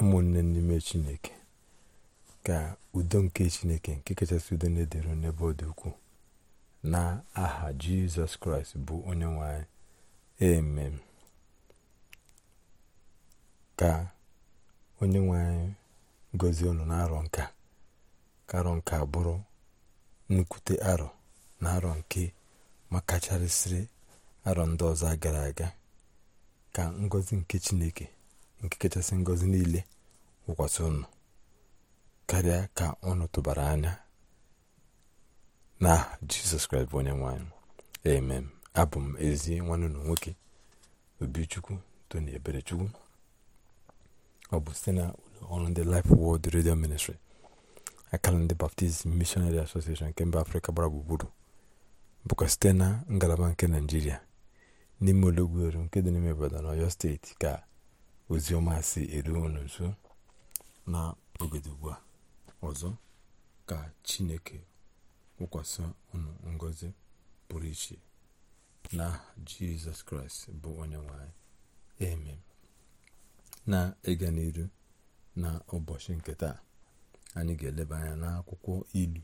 ụmụnne n'ime chineke ka udo nke chineke nke kachasị udo na-edere n'ebe ọ dị ukwuu na aha jizọs kraịst bụ onye nwanyị anyị emem ka onye nwanyị anyị gọzie unu na-arọ nka ka arọ nka bụrụ nnukwute arọ na arọ nke makacharịsịrị arọ ndị ọzọ gara aga ka ngozi nke chineke nke kachasị ngọzi niile wụkwasị ụnụ karịa ka ụnụ tụbara anya na jizọs kraịst bụ onye nwanyị amen abụ m ezi nwanne ụlọ nwoke obichukwu tony eberechukwu ọ bụ site na ụlọ ọrụ ndị Life Word Radio Ministry akara ndị Baptist Missionary Association nke mba afrịka gbara gburugburu bụkwa site na ngalaba nke naijiria n'ime olọgwueru nke dị n'ime obodo na steeti ka oziọma si eru unu na ogede ugbu a ọzọ ka chineke kwụkwasị unu ngozi pụrụ iche na jizọs kraịst bụ onye nwanyị eme na ịga n'iru na ụbọchị nke taa anyị ga-eleba anya n'akwụkwọ ilu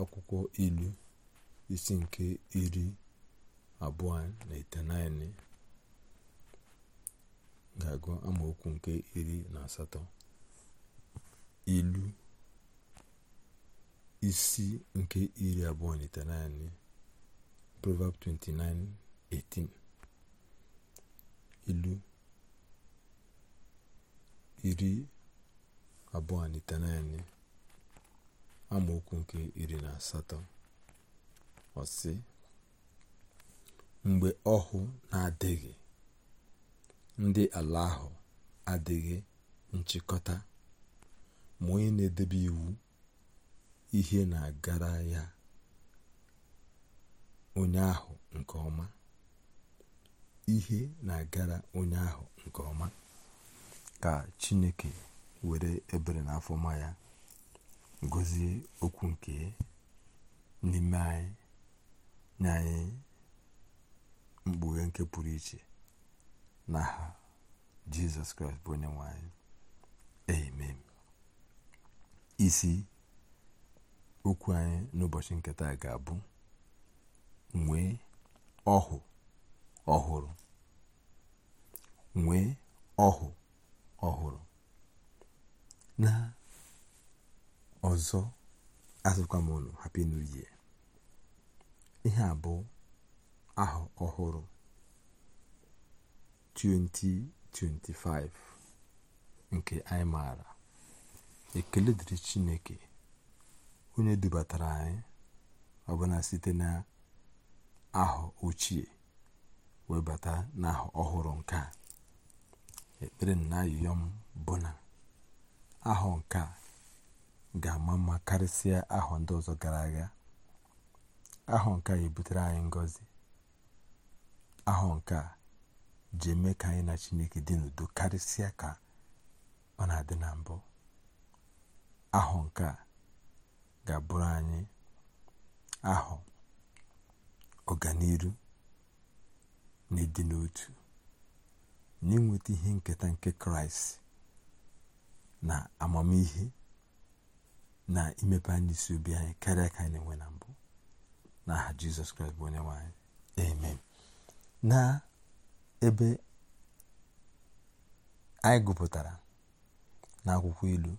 akwụkwọ ilu isi nke iri abụọ na itenaine ga-agụ amaokwu nke iri na asatọ ilu isi nke iri abụọ na itenaịnị proverb 29:18 ilu iri abụọ na itenaịnị amaokwu nke iri na asatọ ọsị mgbe ọhụụ na-adịghị ndị ala ahụ adịghị nchịkọta ma onye na-edebe iwu ihe na-agara ya onye ahụ nke ọma ihe na-agara onye ahụ nke ọma ka chineke were ebere na afọma ya gọzie okwu nke n'ime anyị nye anyị mkpughe nke pụrụ iche na ha jesus kraịst bụ onye nwanyị amen isi okwu anyị n'ụbọchị nketa ga-abụ nwee ọhụ ọhụrụ nwee ọhụ ọhụrụ na ọzọ azụkwa m happy new year ihe a bụ aha ọhụrụ 20 25 nke anyị maara ekele dịrị chineke onye dubatara anyị ọbụna site na ahụ ochie webata n'ahụ ọhụrụ nke a ekpere na ayịyọ m bụ na ahụ nke a ga-ama mma karịsịa ahụ ndị ọzọ gara aga ahụ nke a ebutere anyị ngọzi ahụ nke a ji eme ka anyị na chineke dị n'udo karịsịa ka ọ na-adị na mbụ ahụ nke a ga-abụrụ anyị ahụ ọganihu na ịdị n'otu na ịnweta ihe nketa nke kraịst na amamihe na imepe anyị isi obi anyị karịa ka anyị na-enwe na mbụ n'aha jizọs kraịst bụ onye nwanyị anyị amen na ebe anyị gụpụtara n'akwụkwọ ilu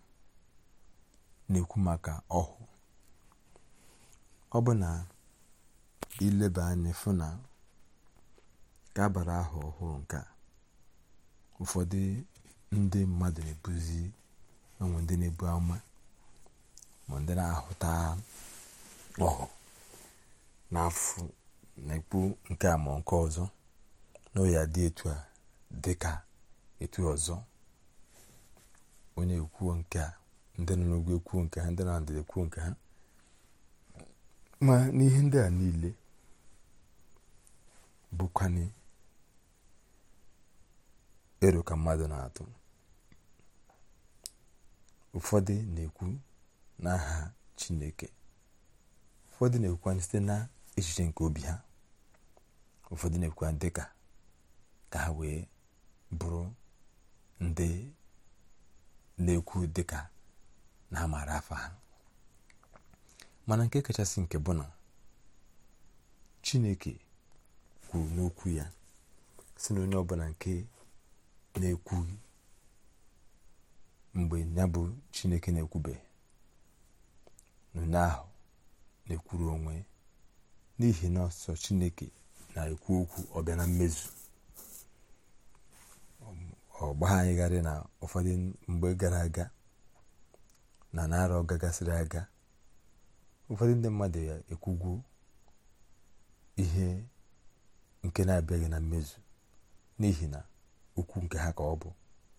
na-ekwu maka ọhụụ ọ bụ na ileba anya fụ na ka abalị ahụ ọhụrụ nke ụfọdụ ndị mmadụ na-ebuzi enwe ndị na-ebu ama ma ndị na-ahụta ọhụ n'afọ na-ekpu nke a ma nke ọzọ na ya dị etu a dị ka etu ọzọ onye ekwuo nke a ndị nọ n'ugwu ekwuo nke ha ndị na ndịda ekwuo nke ha ma n'ihe ndị a niile bụkwanye ero ka mmadụ na-atụ ụfọdụ na-ekwu n'aha chineke ụfọdụ na-ekwukwa site na echiche nke obi ha ụfọdụ na-ekwukwa dịka ka ha wee bụrụ ndị na-ekwu dịka na amara afọ ha mana nke kachasị nke bụ na chineke kwuru n'okwu ya si na onye ọbụla nke na-ekwu mgbe ya bụ chineke na-ekwubeghị n'onye ahụ na-ekwuru onwe n'ihi na ọsọ chineke na-ekwu okwu ọbịa na mmezu anyị gharị na ụfọdụ mgbe gara aga na narọ gagasịrị aga ụfọdụ ndị mmadụ ya ekwugwu ihe nke na-abịaghị na mmezu n'ihi na okwu nke ha ka ọ bụ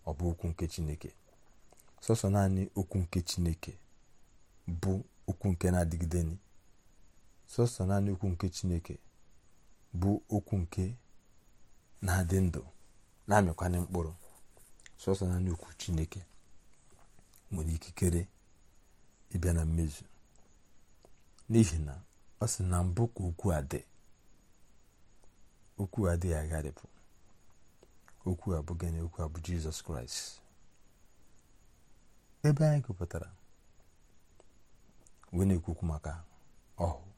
ọ bụ okwu nke chineke sọsọ naanị okwu nke chineke bụ okwu nke na-adịgide sọsọ naanị okwu nke chineke bụ okwu nke na-adị ndụ na-amịkwanye mkpụrụ sọsọ na okwu chineke nwere ikikere ịbịa na mmezu n'ihi na ọ sị na mbụ ka okwu a dị okwu a dịghị agharịpụ okwu a bụ gịnị okwu a bụ jizọs kraịst ebe anyị gụpụtara wee na-ekwukwu maka ọhụụ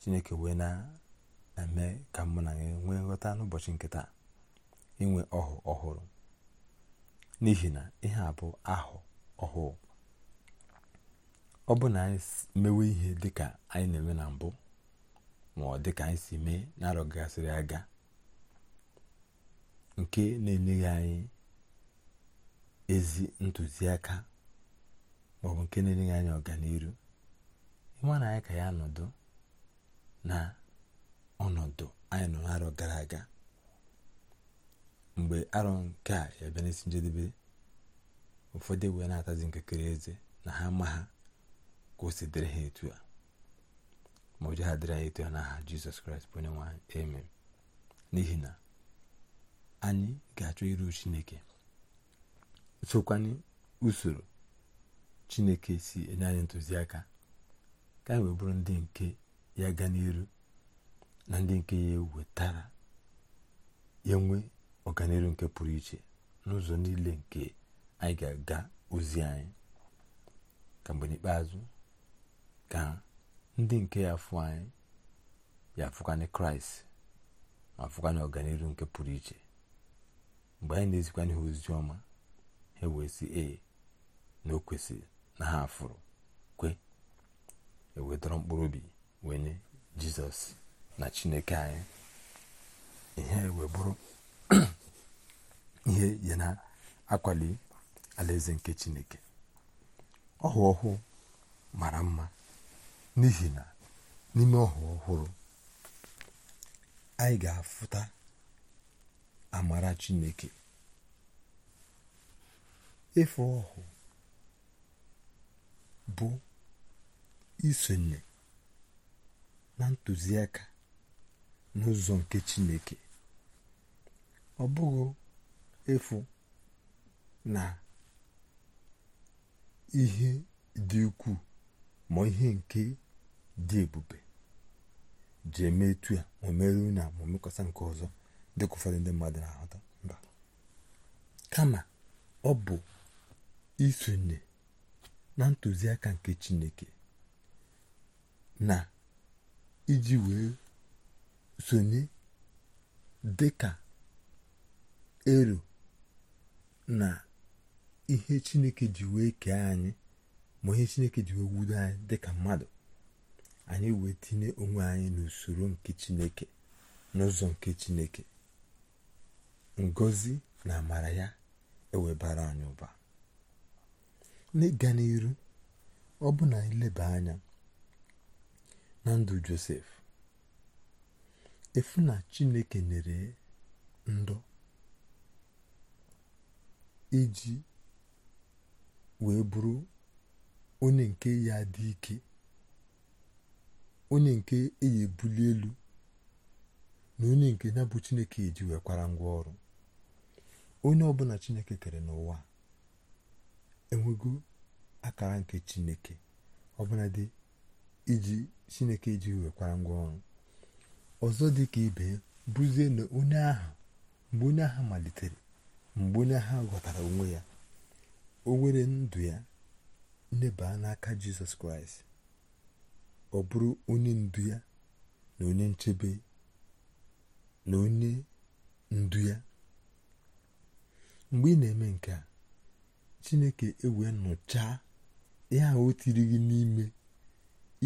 chineke wee na-eme ka mụ na nwee nghọta n'ụbọchị nkịta inwe ọhụụ ọhụrụ n'ihi na ihe a bụ ahụ ọhụụ ọ bụ na anyị mewe ihe dịka anyị na-eme na mbụ ma ọ dịka anyị si mee na aga nke na-enyeghị anyị ezi ntụziaka bụ nke na-enyeghị anyị ọganiru ịma na anyị ka ya nọdụ na ọnọdụ anyị nọ n'arọ gara aga mgbe arọ nke a ya bịa n'isi njedebe ụfọdụ wee na-atazi nkekere eze na ha ma ha ka o si dịrị ha etu a ma ụjọ ha dịrị ha etu a n'aha jizọs kraịst bụ onye nwanyị amen n'ihi na anyị ga-achọ iru chineke sokwanye usoro chineke si enye anyị ntụziaka ka anyị wee bụrụ ndị nke ya gaa n'iru na ndị nke ya ewetara ya nwee ọganihu nke pụrụ iche n'ụzọ niile nke anyị ga-aga ozi anyị ka mgbe n'ikpeazụ ka ndị nke ya fụ anyị ya fụkwanye kraịst ma fụkwanye ọganihu nke pụrụ iche mgbe anyị na-ezikwanye ha ozi ọma ha wee na o kwesịrị na ha afụrụ kwe ewedọrọ mkpụrụ obi wee nye jizọs na chineke anyị ihe wee bụrụ ihe ya na-akwali alaeze nke chineke ọhụ ọhụụ mara mma n'ihi na n'ime ọhụ ọhụrụ anyị ga-afụta amara chineke efe ọhụ bụ isonye na ntụziaka n'ụzọ nke chineke ọ bụghị efu na ihe dị ukwuu ma ihe nke dị ebube ji eme etu a ma na ma mekwasa nke ọzọ dịka ụfọdụ ndị mmadụ na-ahụta mba kama ọ bụ isonye na ntụziaka nke chineke na iji wee sonye dịka ero na ihe chineke ji wee kee anyị ma ihe chineke ji wee wudo anyị dịka mmadụ anyị wee tinye onwe anyị n'usoro nke chineke n'ụzọ nke chineke ngozi na amara ya ewebara anyị ụba n'ịga n'iru ọ bụ na ileba anya na ndụ josef efu na chineke nyere ndụ iji wee bụrụ onye nke ya dị ike onye nke eyi ebuli elu na onye nke ya bụ chineke eji nwekwara ngwa ọrụ onye ọbụla chineke kere n'ụwa enwego akara nke chineke ọbụla dị iji chineke eji wekwara ngwa ọrụ ọzọ dị ka ibe bụzie na onye ahụ mgbe onye agha malitere mgbe onye ha ghọtara onwe ya o nwere ndụ ya ndebaa n'aka jizọs kraịst ọ bụrụ onye ndu ya na onye nchebe na onye ndu ya mgbe ị na-eme nke a chineke ewee nụchaa ihe o tiri gị n'ime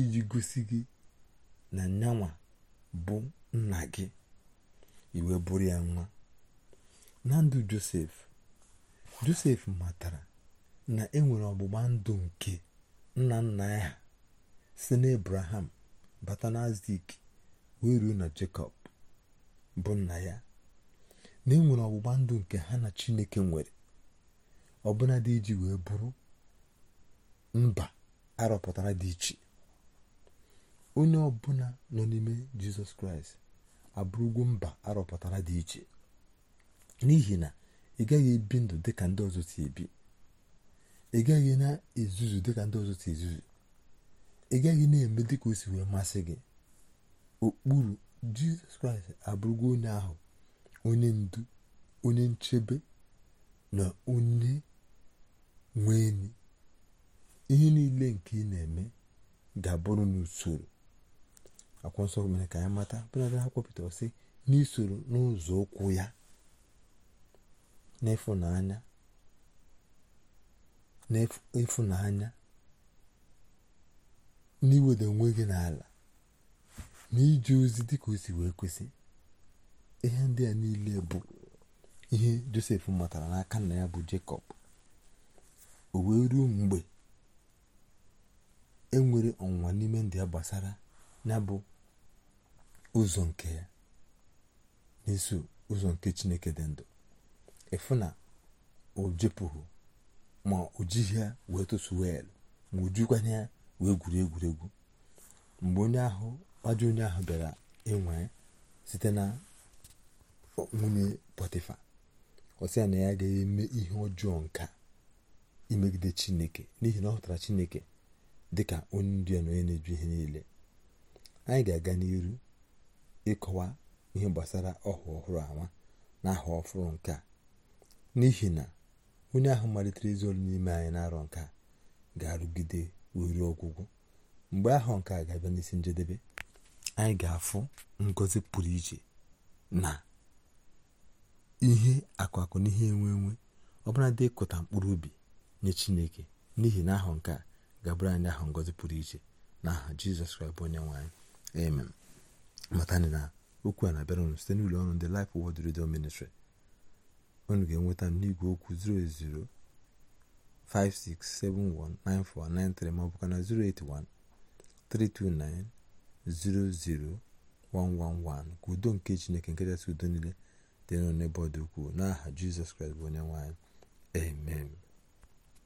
iji gosi gị na nyanwa bụ nna gị iwe bụrụ ya nwa na ndụ josef josef matara na enwere ọgbụgba ndụ nke nna nna ya si n'ebraham bata na azik wee ruo na jacob bụ nna ya na enwere ọgbụgba ndụ nke ha na chineke nwere ọbụna dị iji wee bụrụ mba arọpụtara dị iche onye ọbụla nọ n'ime jizọs kraịst abụrụgwo mba arọpụtara dị iche n'ihi na ị gaghị ebi ndụ dịka ndị ọzọ si ebi ị gaghị na-ezuzu dịka ndị ọzọ si ezuzu ị gaghị na-eme dịka o si wee masị gị okpuru jizọs kraịst abụrụgo onye ahụ onye ndu onye nchebe na onye nwe ihe niile nke ị na-eme ga-abụrụ n'usoro akwụkwọ nsọ mere ka anyị mata bụ bụnadị ha kwupụtara sị n'isoro n'ụzọ ụkwụ ya n'ịfụnanya n'ịfụnanya n'iweda onwe gị n'ala na ije ozi ka o si wee kwesị ihe ndị a niile bụ ihe josef matara n'aka na ya bụ jacob o wee ruo mgbe enwere ọnwụnwa n'ime ndị ya gbasara ya bụ ụzọ nke ya na-eso ụzọ nke chineke dị ndụ ịfụ na ojepụghị ma ojighị ya wee tụsuo elu ma ojukwanye ya wee gwuru egwuregwu mgbe onye ahụ ajọ onye ahụ bịara ịnwe site na nwunye pọtịfa ọsị ya na ya agaghị eme ihe ọjọọ nka imegide chineke n'ihi na ọ hụtara chineke dị ka onye ndu na onye na-eju ihe niile anyị ga-aga n'iru ịkọwa ihe gbasara ọhụ ọhụrụ anwa na aha ọhụrụ nke a n'ihi na onye ahụ malitere izu olu n'ime anyị na-arọ nke a ga-arụgide ruo ọgwụgwụ mgbe ahụ nke a ga-abịa n'isi njedebe anyị ga-afụ ngozi pụrụ iche na ihe akụakụ na ihe enwe enwe ọbụla ịkụta mkpụrụ ubi nye chineke n'ihi na ahụ nke a ga-abụrụ anyị ahụ ngozi pụrụ iche na aha jizọs kraịst bụ onye nwe amen matani na okwu a na-abịara unu site n'ụlọ ọrụ ndị Life wod Radio Ministry unu ga-enweta n'igwe okwu 08056719493 ma ọ bụkwa na 08132900111 ka udo nke Chineke nke kachasị udo niile dị n'ọnụ ebe ọ dị ukwuu n'aha Jizọs Kraịst bụ onye nwe amen